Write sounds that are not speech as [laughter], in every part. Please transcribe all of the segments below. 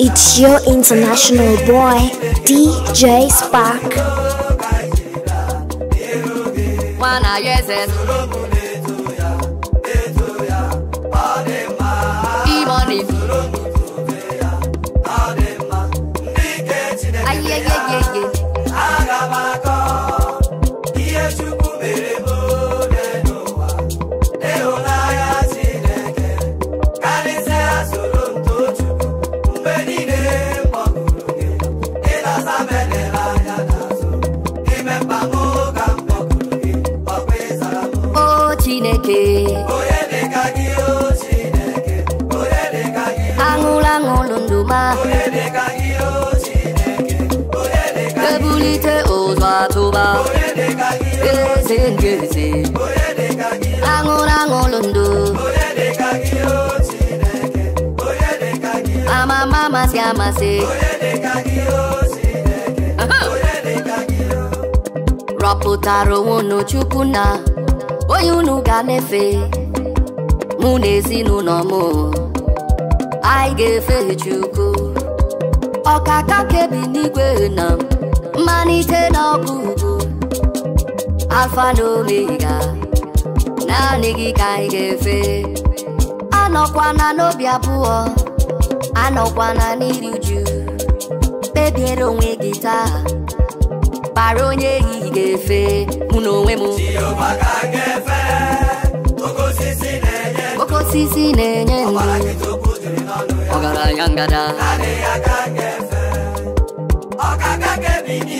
It's your international boy, DJ Spark na na yes yes ụzọ atụba eze nke eze aṅụrụ aṅụrụ ndụ amama amasị amasị rọpụtara onwe unu chukwu na onye unu ga-emefe mụ na ezinụlọ m anyị ga-efe chukwu ọkaka kebi n'igwe na m amalite n'ọgwụgwụ alfa na ya, naanị gị ka anyị ga-efe anọkwana n'obi abụọ anọkwana n'iri uju kpebiere onwe gị taa kpara onye ehihie ga-efe mụ na onwe m oke osisi na-enye ndụ ọgaranya ngada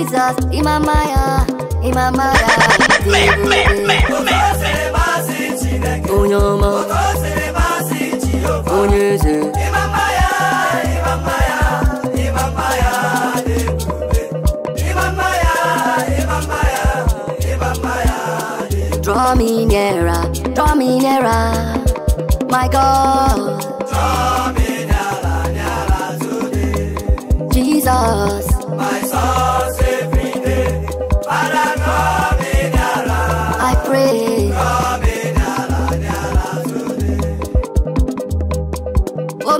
Jesus, pizzas y mamaya, y mamaya. Onye ọma, onye eze. Draw me nearer, draw me nearer, my God. Draw me nearer, nearer today. Jesus.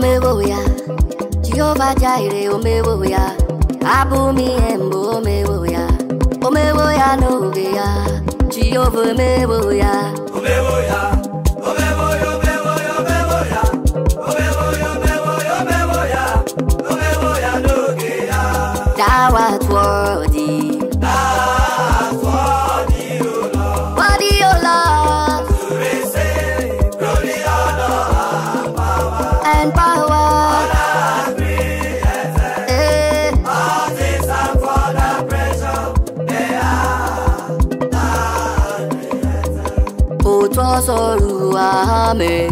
wo ya Jehovah Jireh wo ya abụ embo ihe mbụ omewo ya wo ya no ge ya Jehovah Jehova wo ya wo ya sọ̀rọ̀ àmẹ́.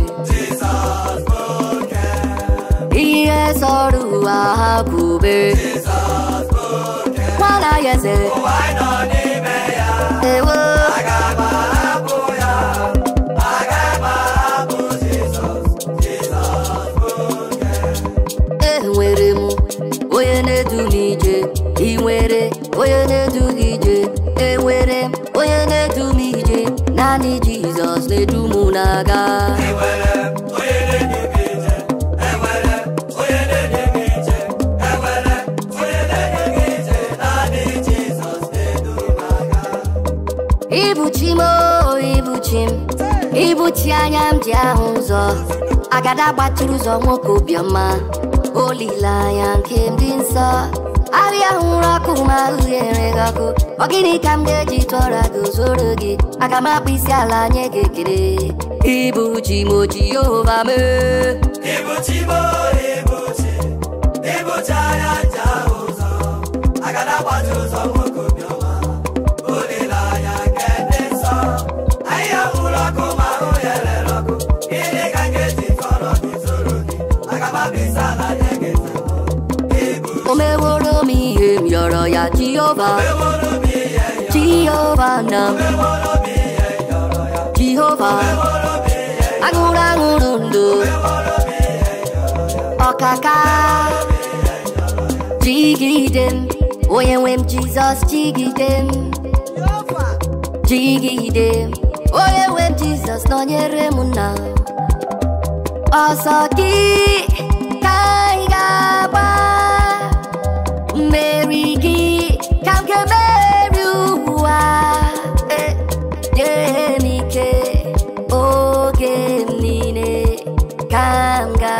Iye sọ̀rọ̀ àkùbé. Wọ́n láyẹsẹ̀. Òwá iná ní mẹ́yà. Èwo. daga Ibuchim o ibuchim ibuchi anya m ji ahụ ụzọ agada gbatụrụ ụzọ nwoke obiọma olileanya nke ndị nsọ ahịa hụrụ ọkụ ma ahụ ghere gị ọkụ ọ gịnị ka m ga-eji tụọra gị zoro gị ala nye gị Ibuchi mochi over me. Ibuchi mo, ibuchi, ibuchi ayaja ozo. Agada watu ozo moko bioma. Olila ya kende so. Aya uloko maro yele loko. Ile kangeti foro kisoroni. Agaba bisa na yegeta. Ibuchi. Omeworo mi em yoro ya Jehovah. Omeworo mi em yoro. Jehovah na. Omeworo mi em yoro ya. Jehovah. agụrụ aṅụrụ ọkaka jigide m onye nwe m jizọs jigide m jigide m onye nwe m jizọs nọnyere m ọsọ gị ka anyị ga-agba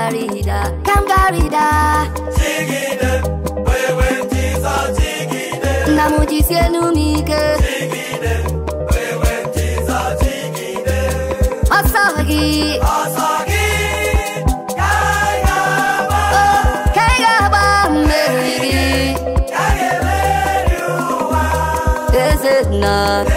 Kangarida, Kangarida. Jigide, wewe tisa jigide. Namujisye lumike. Jigide, wewe tisa jigide. Asagi, asagi. Is it not?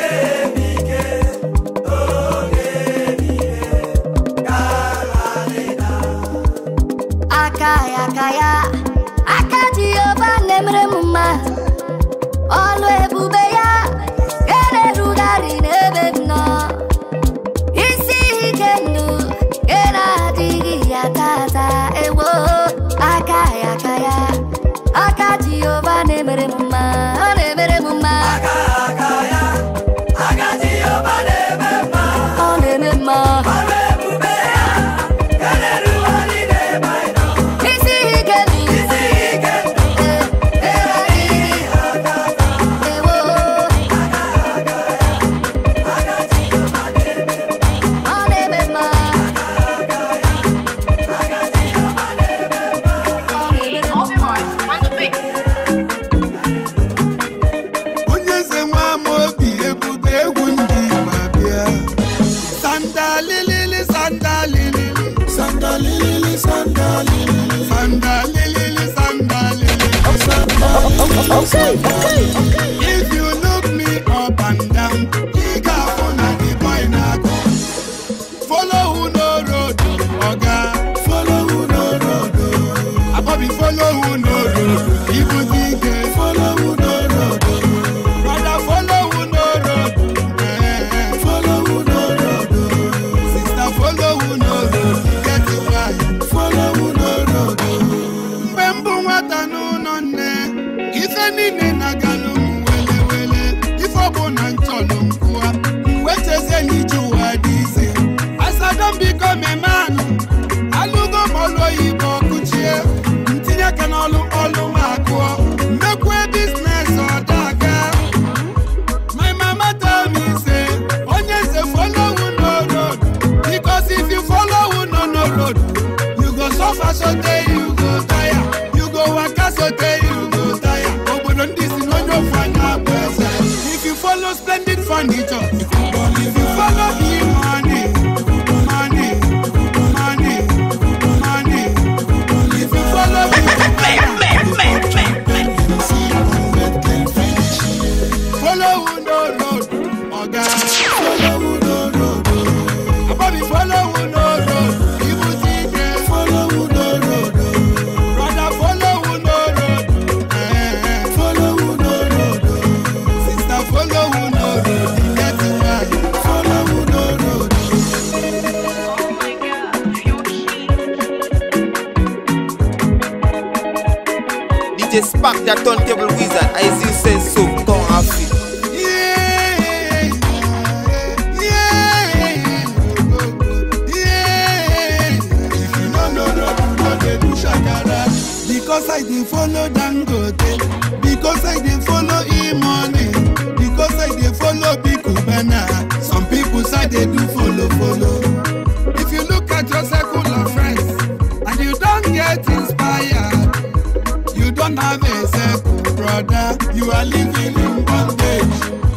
Say.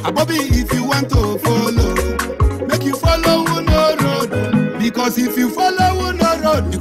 Abobi, if you want to follow, make you follow no road. Because if you follow no road, you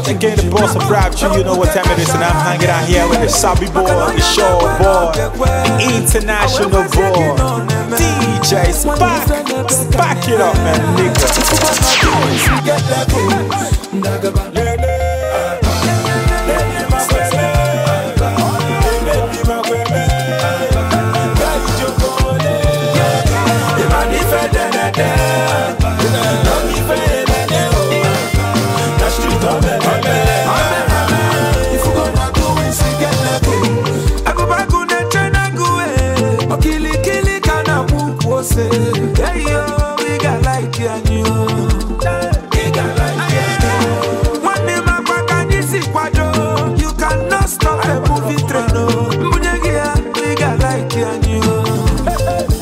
nothing can the boss of bribe you. You know what time it is, and I'm hanging out here with the Sabi boy, the show boy, the international boy, DJ Spack. Spack it up, man, nigga. Yeah. say, hey yo, we got like you and you. We got like you. One day my back and this is quadro. You cannot stop a movie train. Munegia, we got like you and you.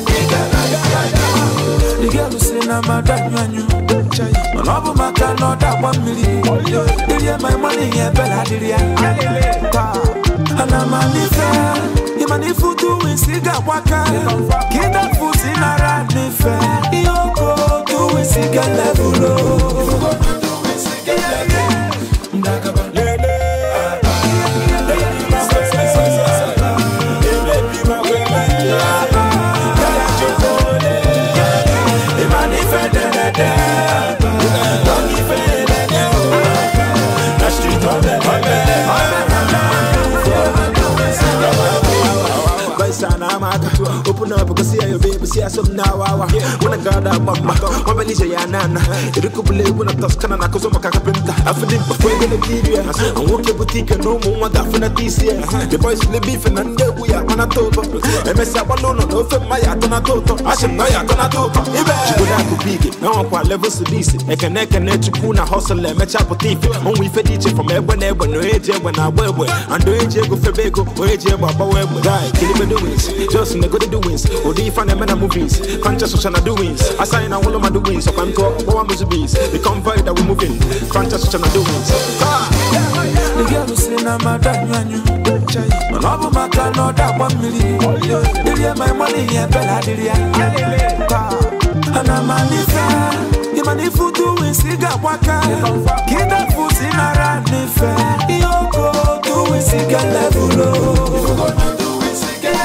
We got like you. The girl who say, nah, madam, you and you. Ọlọ́bù máa ká lọ́dà one million. Ilé ẹ̀ máa ń mọ́ nìyẹn bẹ́ẹ̀ ládìrí ẹ̀. Àná máa nífẹ̀ẹ́. Mani tu manifutu wisigakwaka kidafusi naradife iyokotu wisigelevulo ndakaba lele sign I'm Open up, because see baby, see some now. When I got mama, when I need nana, it could be when I touch Canada, because I'm a carpenter. I feel it before you no more that for this year. The boys will be for none, we are on a total. MSI no for my atona total. I should know you're gonna do. Now i level sedisi. I can neck and chukuna hustle and match up with thief. Only from everywhere, when no eje when I wear. And do AJ go for bagel, or AJ, but I wear. Kill doings. Just in the good doings. Or do you find them in the movies? Crunches social doings. I sign all of my doings. So I'm talking about one movies. The convoy that we're moving. Crunches social doings. Ah! The girl is in a madam, and all of my can not that one million. Did you my money? Yeah, Bella, did you? Ah, and I'm a imani futu wisiga waka kita fusi naranife iyoko tu wisiga levulo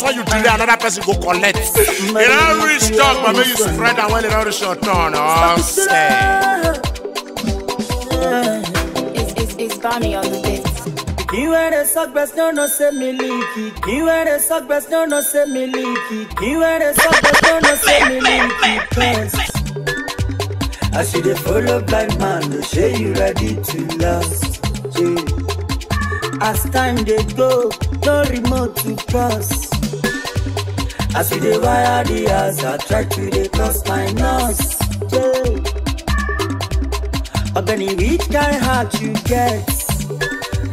because when you delay, another person go collect. It don't reach talk, but make you spread and when it don't reach your turn, oh, say. It's, it's, it's Bonnie on the beat. Iwe de suck best no no se me leaky. Iwe de suck best no no se leaky. Iwe de suck best no no se leaky. Cause I see the follow blind man, no say you ready to last. As time they go, no remote to cross. I see the wire the I try to the cross my nose. Yeah. Organic which kind heart you get?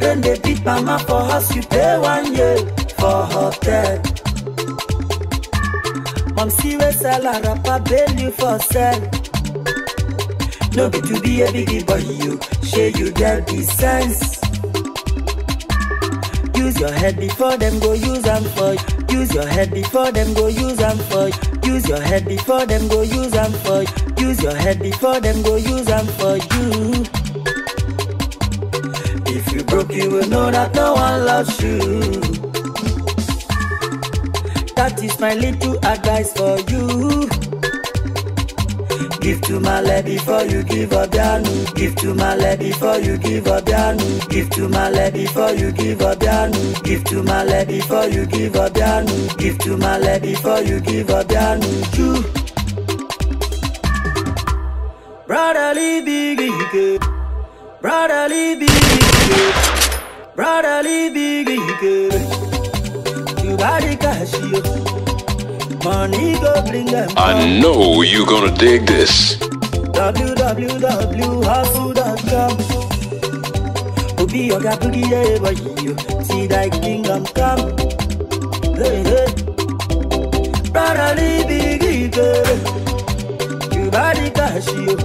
Then they beat mama for house, you pay one year for hotel. Mom see we sell a rapper, bail you for sell. No get to be a biggie, but you, share you get the sense. Use your head before them go use and for Use your head before them go use and for Use your head before them go use and for Use your head before them go use and for you. If you broke, you will know that no one loves you. That is my little advice for you. Give to Male before you give up Yanu. Give to Male before you give up Yanu. Give to Male before you give up Yanu. Give to Male before you give up Yanu. Give to Male before you give up Yanu. True. Brotherly biggie, brotherly biggie, brotherly biggie, you got it, Money go bring them. I know you gonna dig this. www.hustle.com Obi Oga Boogie Day Boy You see that kingdom come Hey hey Brother Libby Gige You body cash you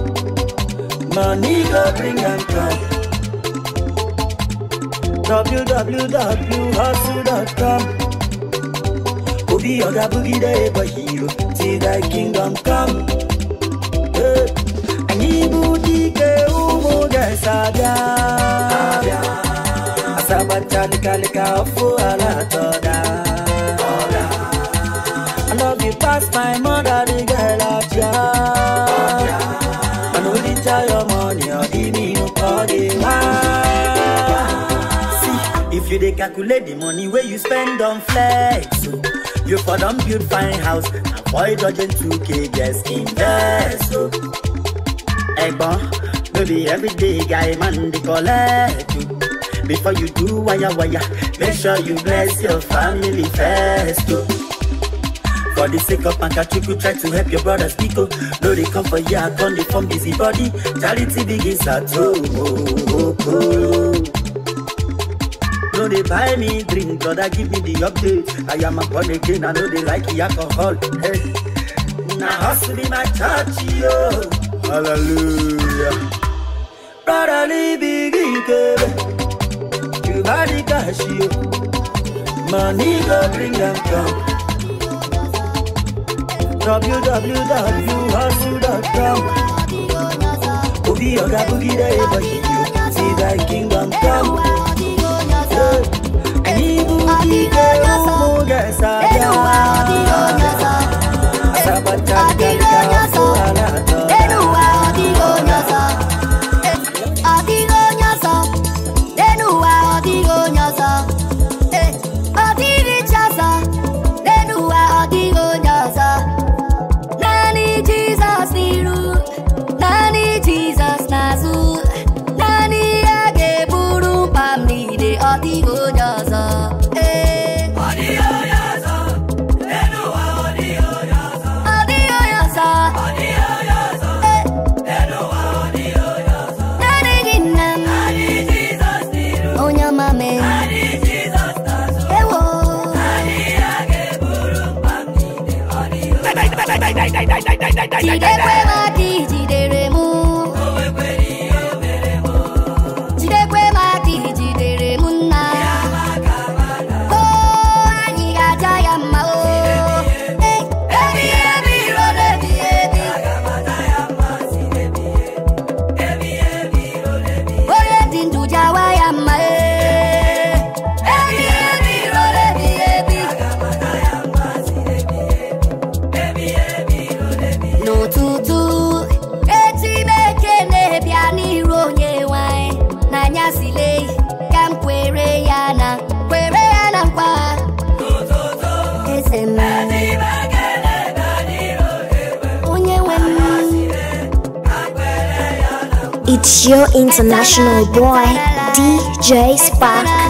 Money go bring them come www.hustle.com Obi other Boogie Day but hero see thy kingdom come eh. Anyị bụ dike ụmụ ga Asaba Asabacha nịkalịka ọfụ ala tọda I love you past my mother the girl of ya I no dey tell your money or the mean or the man See, if you dey calculate the money where you spend on flex so. Oh, You for don build fine house, avoid dodging 2k, just invest. So. Oh. Egbon, no be everyday guy man they collect you. Oh. Before you do wire wire, make sure you bless your family first. Oh. For the sake of You try to help your brothers Pico. No, they come for ya, come, they form busy body. Charity begins at home. Oh, oh, oh no they buy me drink brother give me the update i am a born again i know they like the alcohol hey. now hustle be my church yo hallelujah Brother brotherly bigi kebe you got the cash yo money go bring them come www.hustle.com Obi oga boogie dey boy, see that kingdom come. Sabatan dan kau alat 来来来。your international boy, DJ Spark.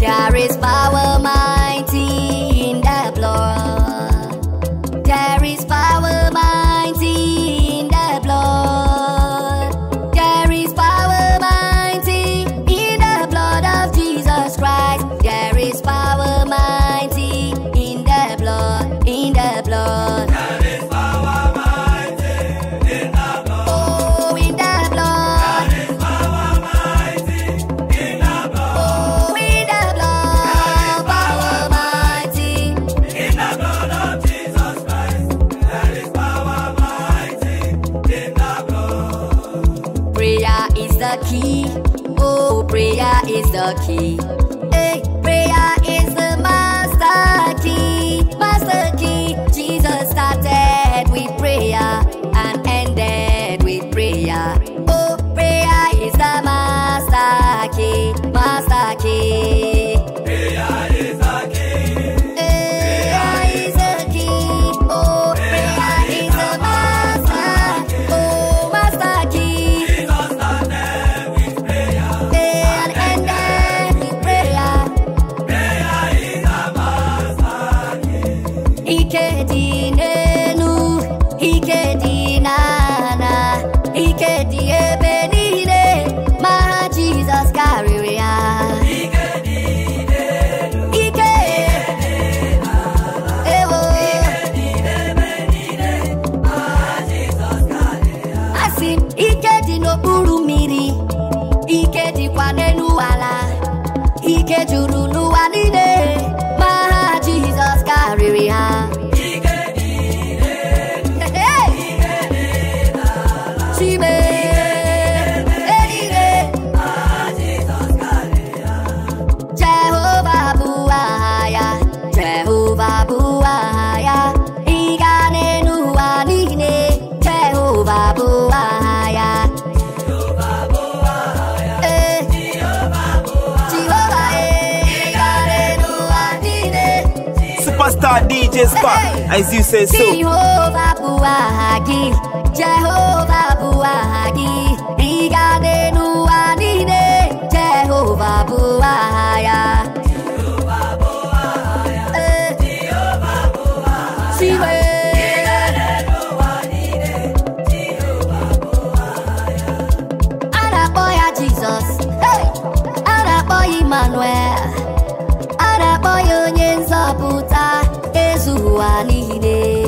There is power. DJ as you say so. Jehovah Jehovah 終わりで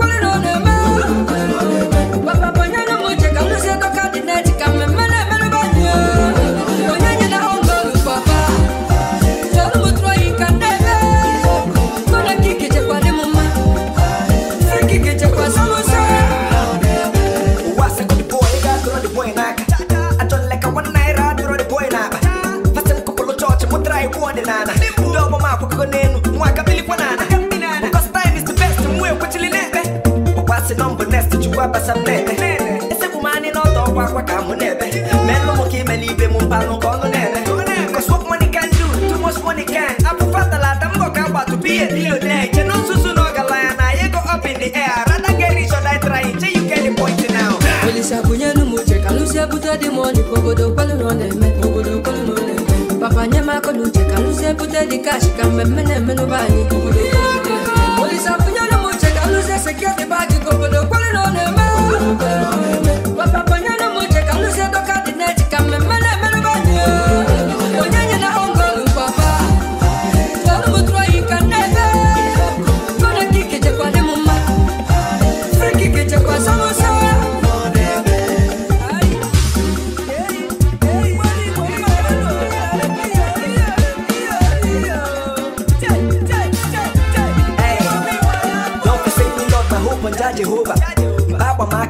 di kashi kan bɛ mɛnɛ minnu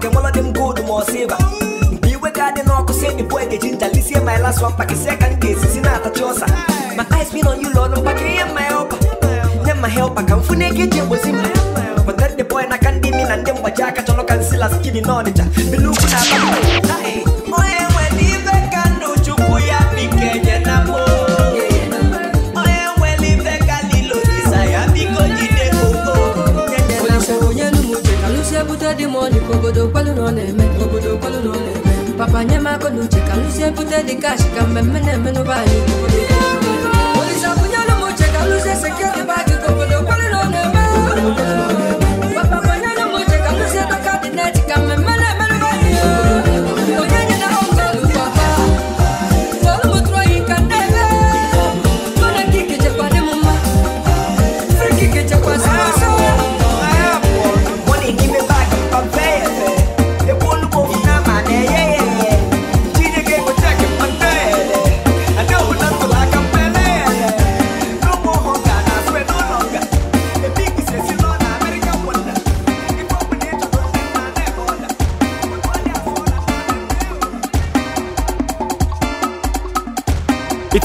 que mola de mgudo mosiba Biwe gade no ako semi boy de jinta Lisi ema ela swan pa kise ka nge si sinata chosa My eyes been on you lord Mpa ke ya ma helpa Ne ma helpa ka mfune ke jembo zimba Mpa nerde boy na kandimi na ndembo jaka Cholo kansila skini nonicha Bilu kuna ba Hey money obodo kwalụ na ọ na-eme obodo kwalụ na kwalu papa nye m aka n'uche ka m lụzie bute dị kash ka mmemme na-eme n'ụba anyị kwalụ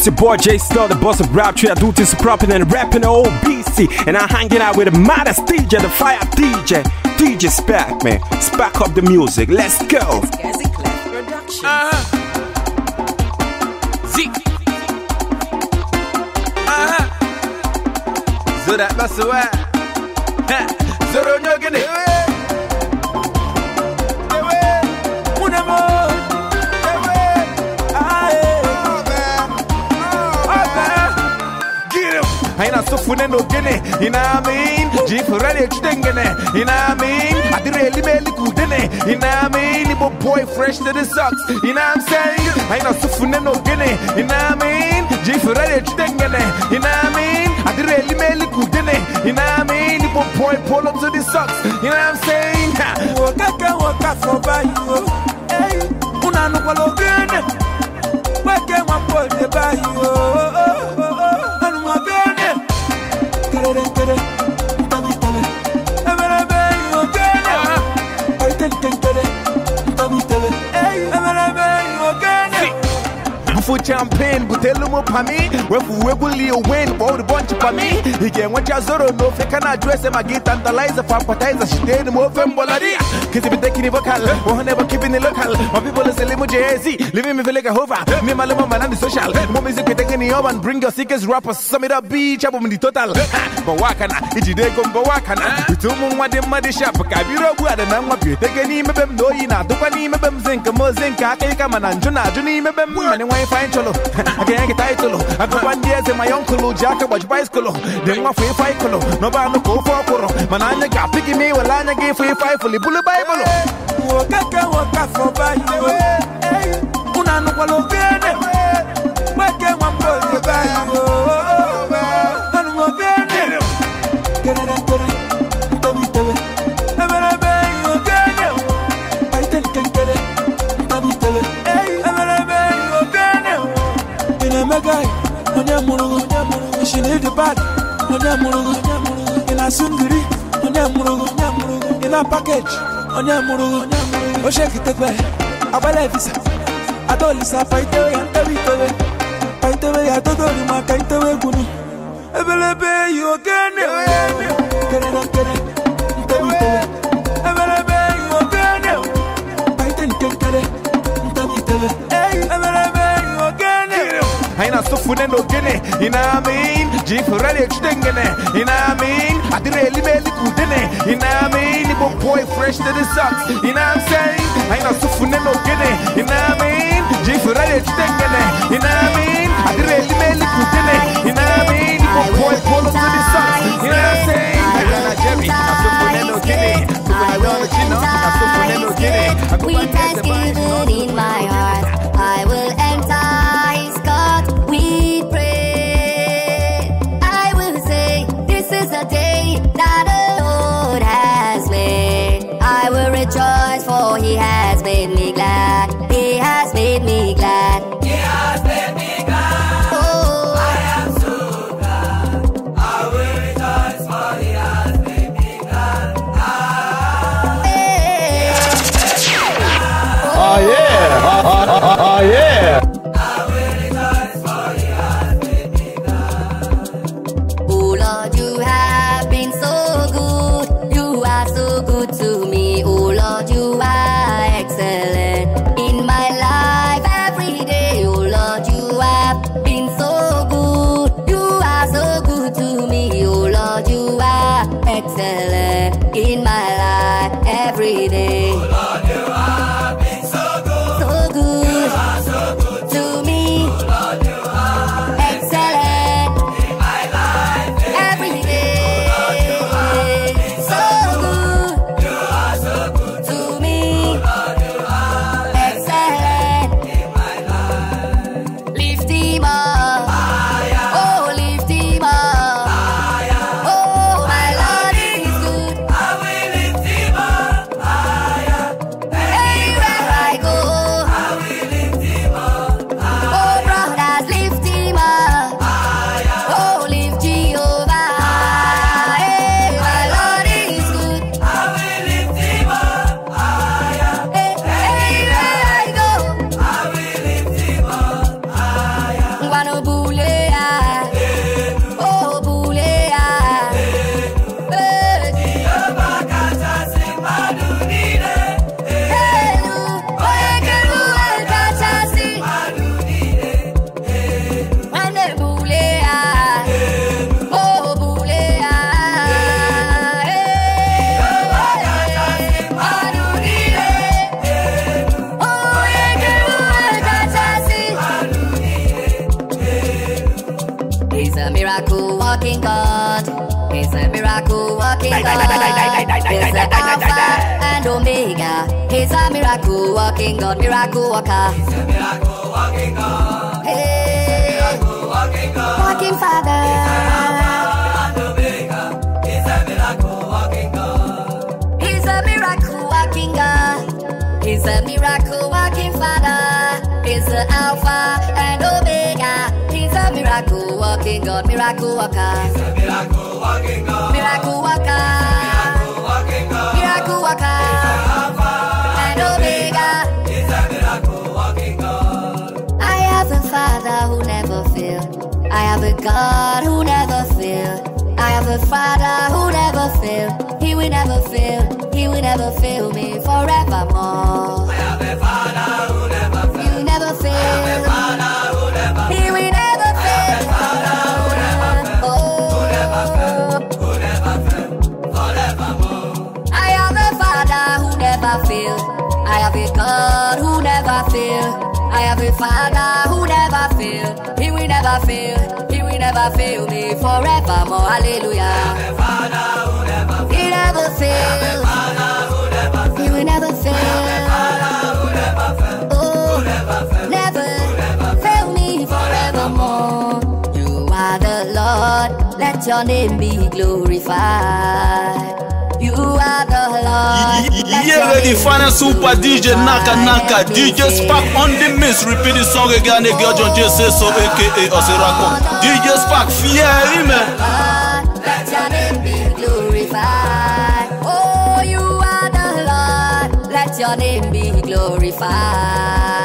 your boy Jay Star, the boss of rap tree. I do this proper and rapping old BC. And I'm hanging out with the modest DJ, the fire DJ, DJ Spack, man. Spack up the music. Let's go. Uh-huh. So uh-huh. that's the way. you know what I mean jeep chitengene you know I mean adire elimeli kudene you know I mean ibo boy fresh to the socks you know I'm saying I know so fune you know I mean jeep chitengene you know I mean adire elimeli kudene you know I mean ibo boy pull up to the socks you know I'm saying wakaka waka for by you hey unanu kwalo gene wake one boy by you oh, oh, oh. pero quiero. for champagne, butelu mo pami Wefu a win, bold bunch pami Hige mwacha zoro no feka na them Magi tantalize, fampatize, shiteni mo fembolaria Kizi bite kini vocal, wahane ba keeping it local My people is elimu JZ, living me feel like a hover Me maluma manani social, mo music kitenge ni oven, Bring your sickest rappers, sum it up beach, in the total but but Bawakana, ijide gombo wakana Itumu mwade mwade shop, kabiro it, na mwapyo Itege ni mebem, no yina, dupa ni mebem Zinka mo zinka, kaya kama na do juni mebem Mane wifi fine cholo. [laughs] I can't get title. I go one day my uncle Jack watch bicycle. Then my free fight colo. No ban no go for coro. Manana got picky me while I give free fight for the bullet Bible. Wakaka waka for bad. Unano kwalo gene. one boy the Bible. guy, onye mụrụ gị, she need the bad, onye mụrụ gị, ị na sungiri, onye mụrụ gị, ị na package, onye mụrụ gị, o shekitekwe, agbala visa, atọlisa paitewe ya ntewe itewe, paitewe ya totori You itewe gwuru, ebelebe you oke na-ewe ya ebe, kere na you again, you. Eh. no gene you know what I mean jifurale chudengene you know what I mean adire lime likudene you know what I mean ibo boy fresh to the socks you know what I'm saying I know sofune no gene you know what I mean jifurale chudengene you know what I mean adire lime likudene you know what I mean ibo boy polo to the socks you know what I'm saying I got a Jerry I sofune no gene Sofune no gene I go back to the in my heart There's the Alpha and Omega. He's a miracle walking God, miracle walker. He's a miracle walking God. Hey, miracle walking God. Walking Father. He's an Alpha and Omega. He's a miracle walking God. He's a miracle walking God. He's a miracle walking Father. He's the Alpha and Omega. He's a miracle walking God, miracle walker. He's a miracle walking God, miracle walker. Miracle walking God, miracle walker. I have a Father who never failed. I have a God who never failed. I have a Father who never failed. He will never fail. He will never fail me forevermore. I have a Father who never failed. You never fail. I have a Father. never I have a God who never fail. I have a Father who never fail. He will never fail. He will never fail me forevermore. Hallelujah. I have a Father who Never he never fails. He will never fail. Oh, never fail me forevermore. You are the Lord. Let your name be glorified. You are the Lord. yeah, reggae final super DJ Naka Naka DJ Spark on the mix Repeat the song again Girl John J so aka Osirako DJ Spark fear him eh? Let your name be glorified Oh you are the Lord Let your name be glorified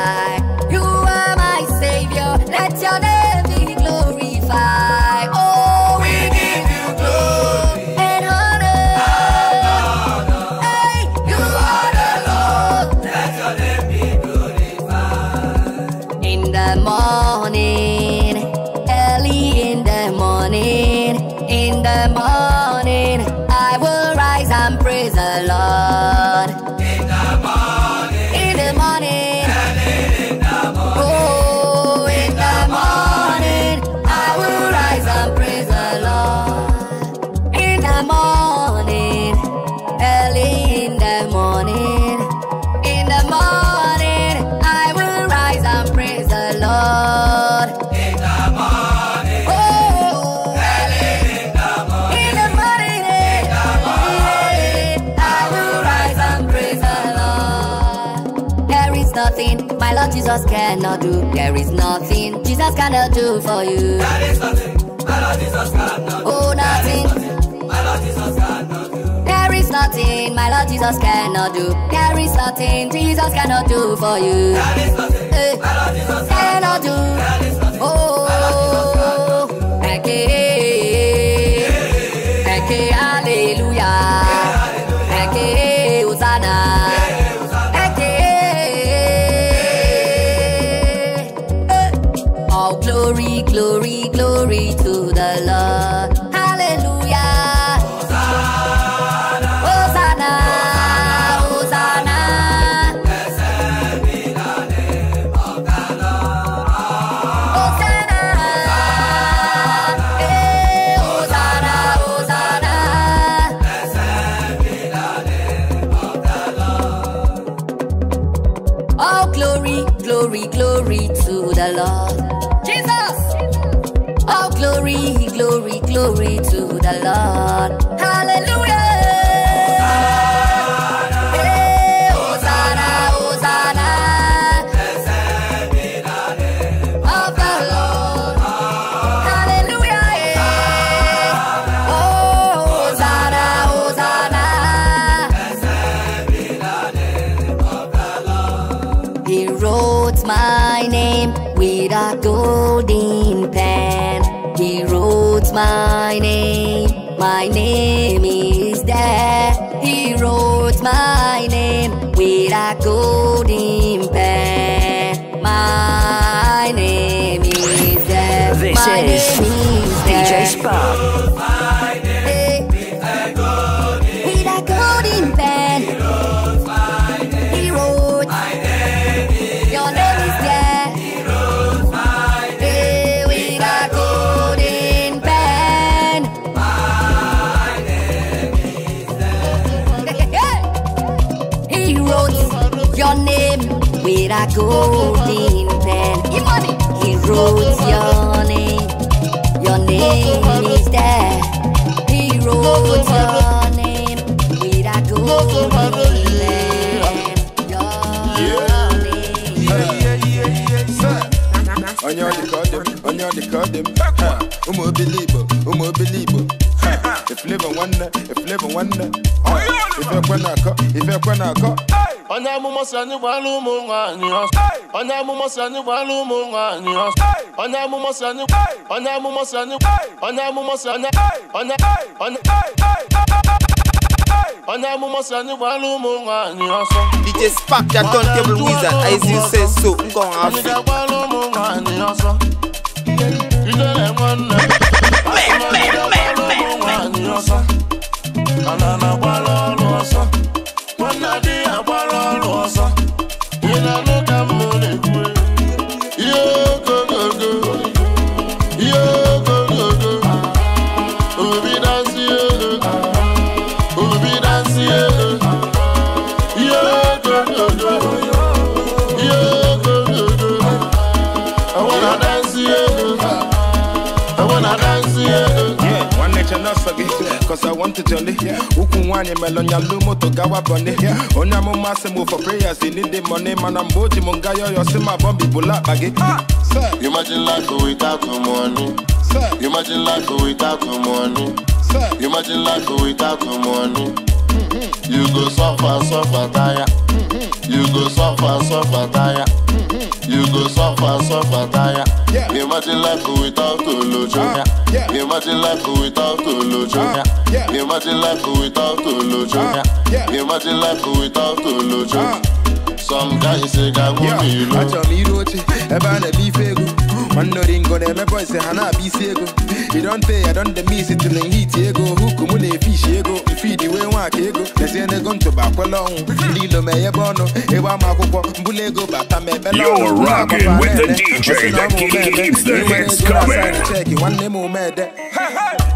Jesus cannot do. There is nothing Jesus cannot do for you. There is nothing my Lord Jesus cannot do. Oh, nothing. My Lord Jesus cannot do. There is nothing my Lord Jesus cannot do. There is nothing Jesus cannot do for you. There is nothing my eh, Lord Jesus cannot do. There is nothing oh, my Lord Jesus cannot do. Eke, eke, hallelujah. Eke, Hosanna. glory, glory to the Lord. glory, glory to the Lord. Hallelujah. My name is there. He wrote my name with a golden pen. My name is there. This my is golden pen. He wrote your name. Your name is there. He wrote your name with a golden pen. Your Yeah, yeah, yeah, sir. On your decodem, on your decodem. Umu believe, umu believe. If live and wonder, if live and wonder. If you're gonna go, if you're gonna go onye amụma si anyị gbara ụmụ nwaanyị onye amụma si anyị gbara ụmụ nwaanyị onye amụma si anyị onye amụma si anyị onye amụma si onye onye onye onye amụma si anyị gbara ụmụ nwaanyị DJ Spark ya don wizard as you say so ngọ nwa afọ anyị gbara ụmụ nwaanyị ọsọ ijere nwanne ọsọ ọsọ ọsọ ọsọ ọsọ cause I want to jolly. Ukunwanye melonya lumo to gawa bunny. Only I'm on for prayers. They need the money, man. I'm boji mungayo. You see my bumpy bullet baggy. Ah, sir, imagine life without the money. Sir, imagine life without the money. Sir, imagine life without the money. Mm-hmm. You go suffer, suffer, tire. Mm-hmm. You go suffer, suffer, tire. Mm-hmm. You go suffer, suffer, tire. Yeah. Imagine life without Olujo. Uh, ah, yeah. Imagine life without Olujo. Uh, ah, yeah. Imagine life without Olujo. Uh, ah, yeah. Imagine life without Olujo. Uh, Some guys say, "Gago I lo." Acho mi roche, eba na bife gu Mando ringo dem me boy say hana be ego. You don't pay, I don't miss it till in heat ego. Hook mule fish ego, feed we want ego. They say they gon to back along. Lilo me ebono, e wa makuko, mbule ego bata me belo. You're rocking with the DJ that keeps the hits coming. One name mede. Hey hey.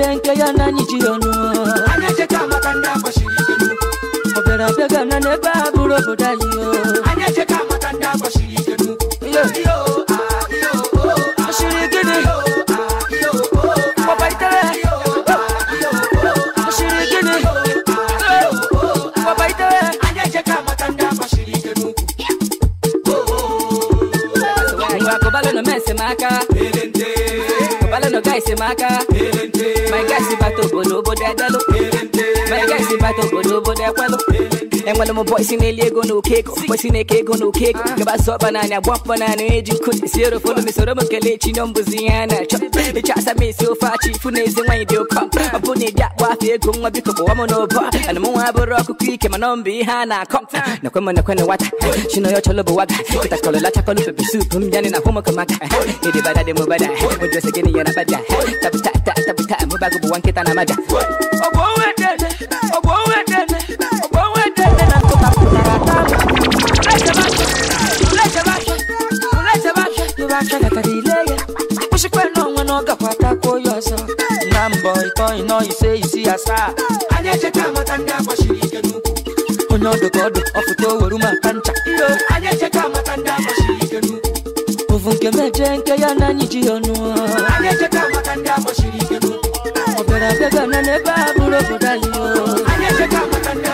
eche nke ya na anyị ji ọnụ ọ bịara abịaga na n'ebe a bụrụ obodo anyị Gang wala mo boy sine liego no keko Boy sine keko no keko Gaba so banana bump banana eji kut Zero follow me so ramo skele nombu ziyana Chop Ni chasa me so far chi fune zi wanyi deo kom Mabu ni da wafi ego mwa biko kwa wamo no bo Ana mwa aburo kukwike nombi hana kom Na kwema na kwena wata Shino yo cholo buwaga Kita kolo la chakolo pepe soup Mjani na homo kamaka Nidi bada de mubada Mujwese gini yana bada Tabu ta ta tabu ta Mubagu buwankita na maja Woo! turn you know you say you see a star anyị echeta amata ndị agbachiri ike n'ukwu onye ọdụ ka ọdụ ọfụta oweru maka ncha anyị echeta amata ndị agbachiri ike n'ukwu ovu nke meje nke ya na anyị ji ya ọnụ anyị echeta amata ndị agbachiri ike n'ukwu ọ bịara abịaga na n'ebe a bụrụ obodo anyị anyị echeta amata ndị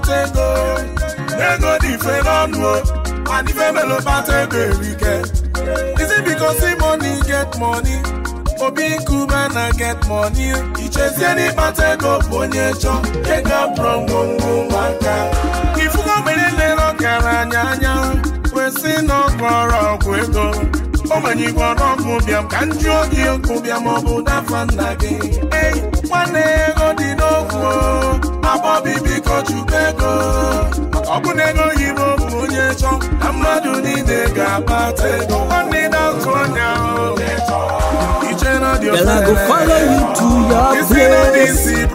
bata ego dị mfe n'ọnụ o and ife melo bata ego erike is it because money get money obi nkume na get money ichezie n'ịkpata ego bụ onye chọ ego abụrụ ngwongwo nwaka ifugo mere lere ọkara anya anya kwesị na ọgwọrọ ọgwụ ego ogbenye igwe ọnụọgwụ bịam ka m jụọ gị bịam ọ bụ dafa nna gị nwanne ego dị abọbibikochubego Girl, I go follow you to your place.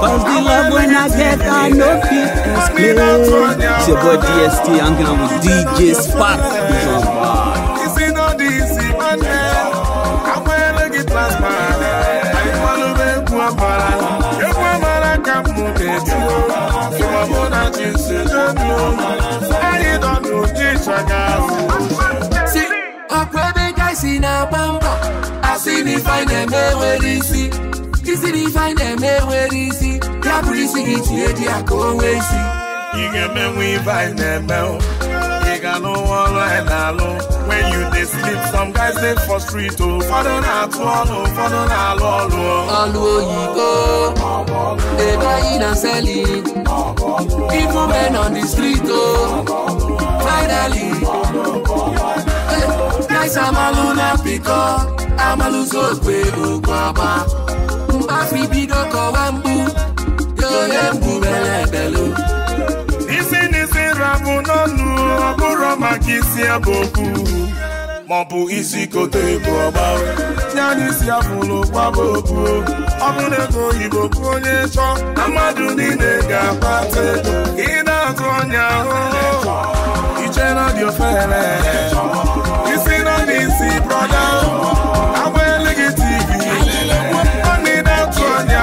Cause the love when I get, I know it's explain. It's your boy DST, I'm going with DJ Spark. maka si ọkwa ebe gaa si na-agba mbọ asị na ife na-eme nwere isi isi na ife na-eme nwere isi ya bụrụ isi gị tinye dị ya ka o nwee isi ị ga-emenwu ife anyị na-eme ị ga n'ụwa ọrụ anyị na-alụ when you dey sleep some guys dey for street o oh. ụfọdụ na-atụ ọnụ ụfọdụ na-alụ ọrụ ọlụ oyibo ebe anyị na oh. oh. seli ifu men on the street o finally. Guys, I'm a Luna Pico, I'm a Luzo Kwaba. Mbafi Bido Kowambu, Yoyembu Belebelu. Isi n'isi rabu n'ọnụ, ọ bụrụ maka no, ebe okwu. Ma ọ bụ isi kote ebu ọgba. Ya n'isi abụlụ gbaba okwu. Ọ bụrụ ego oyibo kwụ onye chọ, na mmadụ niile ga-akpata ego. ọkụ ụnyaahụ ichere dị ofere isi nọ n'isi brọda agba eleghị tv ọnị na-atụ ọnya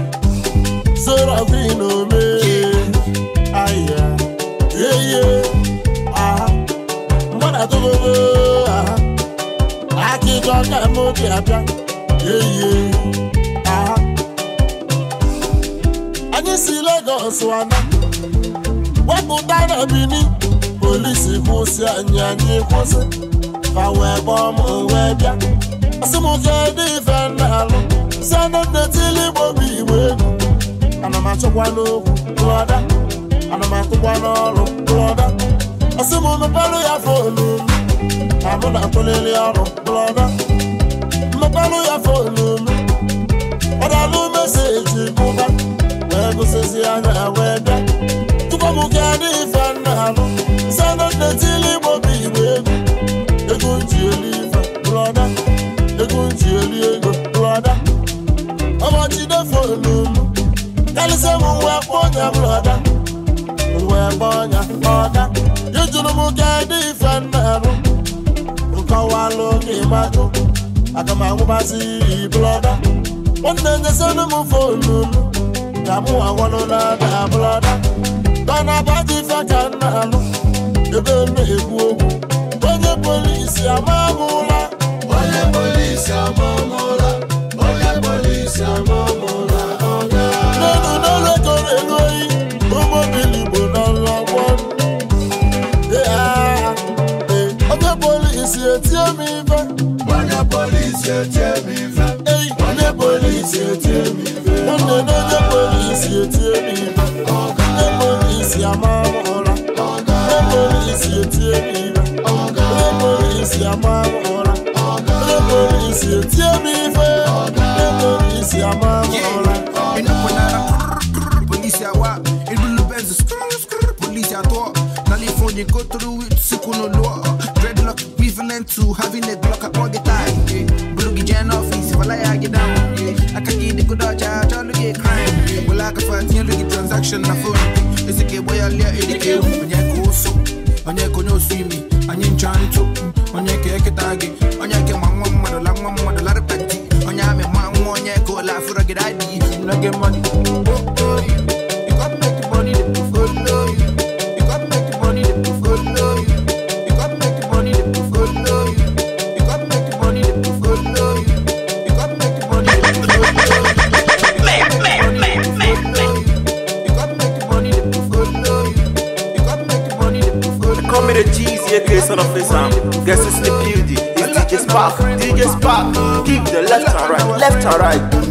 serafin ome aya yeye aha mgbada togogo aha akịjọ ka m obi abịa yeye aha anyị si Lagos wanda. wepụta na Benin polisi kwụsị anya n'ịkwụsị. kwụsị fa wee gbọọ m wee bịa asị m kedụ ife na alụ si anụ nnetili igbo bụ egwu ana m achọkwa n'okwu lọda ana m akụkwa n'ọrụ lọda ọsị m mepelụ ya fonu abụ na akụlili ọrụ lọda mepelụ ya fonu ọ dalụ meseji mụba wee gụsịzi anya wee bịa tupu m gaa ife nna alụ sena nnetili igbo bụ igbo egwu ego ji eli ife lọda ego ji eli ego lọda ọmachide fonu m karịsịa m mgbe akpọ ọnya bụrụ ọda mgbe akpọ ọnya ọda ijuru m ka dị ife na-arụ nkọwalụ gị majụ Aga m anwụbazi ibụrụ ọda nwanne nyesịrị m fonu m ka mụ agwanụ na-ada abụrụ ọda tọna abaji ife ka m alụ ebe m na-ekwu okwu onye polisi ama m ụra onye polisi ama m ụra onye polisi ama m ụra polisi etie mi fẹ́. wọ́n ní polisi etie mi fẹ́. wọ́n ní polisi etie mi fẹ́. wọ́n ní ní ní polisi etie mi fẹ́. ọ̀gá ní polisi amáwòrán. ọ̀gá ní polisi etie mi fẹ́. ọ̀gá ní polisi amáwòrán. ọ̀gá ní polisi etie mi fẹ́. ọ̀gá ní polisi amáwòrán. Polisi awa, ilu lu benz, skr skr, polisi ato, nali fondi kotru wit, sikuno loa. to having a Glock up all the time. Blugi Jan office, if I get down. I can get the good dodge, I try to get crime. Well, I can find the transaction, I phone. It's a good way I let it go. When you go so, when you go no swimming, I you trying to, when you get a target, when you get my mom, mother, long mom, mother, lot of petty, when you have a mom, when you go laugh for a good idea, when I get money. DJ son of Islam, guess it's the beauty, it's DJ Spark, DJ Spark, give the left and right, left and right.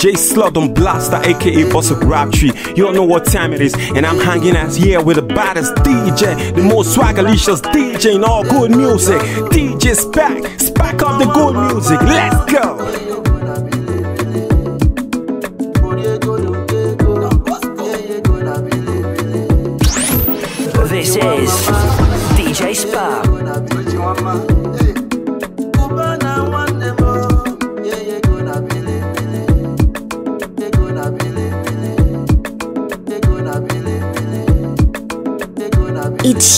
J Slug on Blaster, aka Boss of Tree. You don't know what time it is, and I'm hanging out here with the baddest DJ, the most swagalicious DJ in all good music. DJ Spack, spack on the good music. Let's go.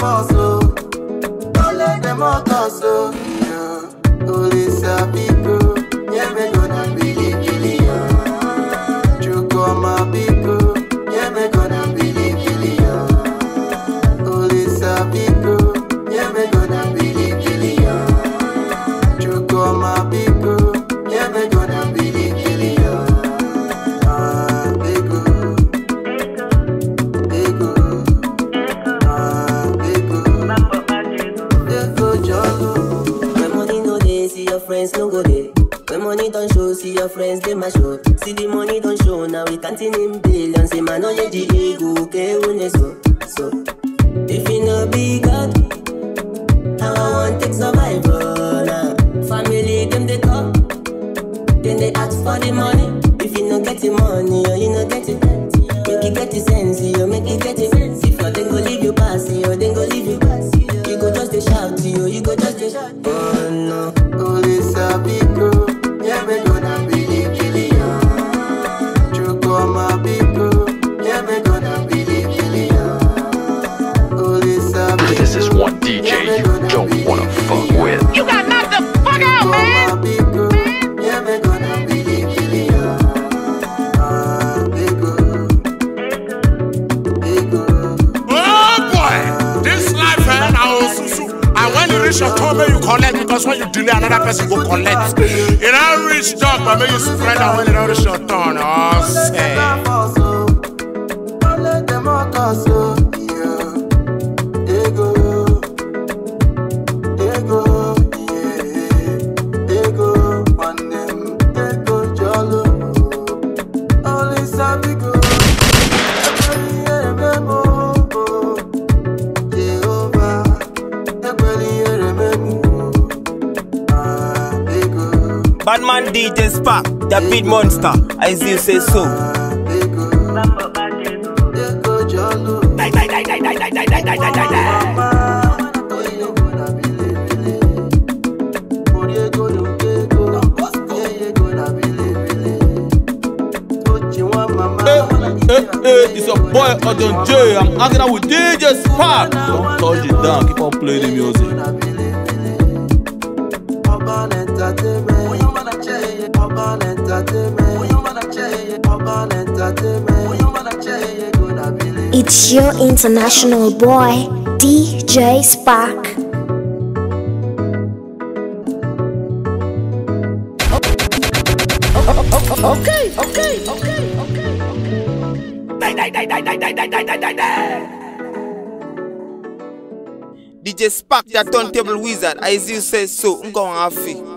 Oh. Don't let them all us, oh. Papa, may you spread our well in all nations. The big monster, I see you say so. Die, die, die, die, die, die, die, die, Hey, eh, eh, hey, eh, it's your boy Odon J. I'm hanging out with DJ Spark. Don't touch it down. Keep on playing the music. it's your international boy, DJ Spark. Okay, okay, okay, okay. okay. DJ Spark, the turntable wizard, as you say so, I'm going to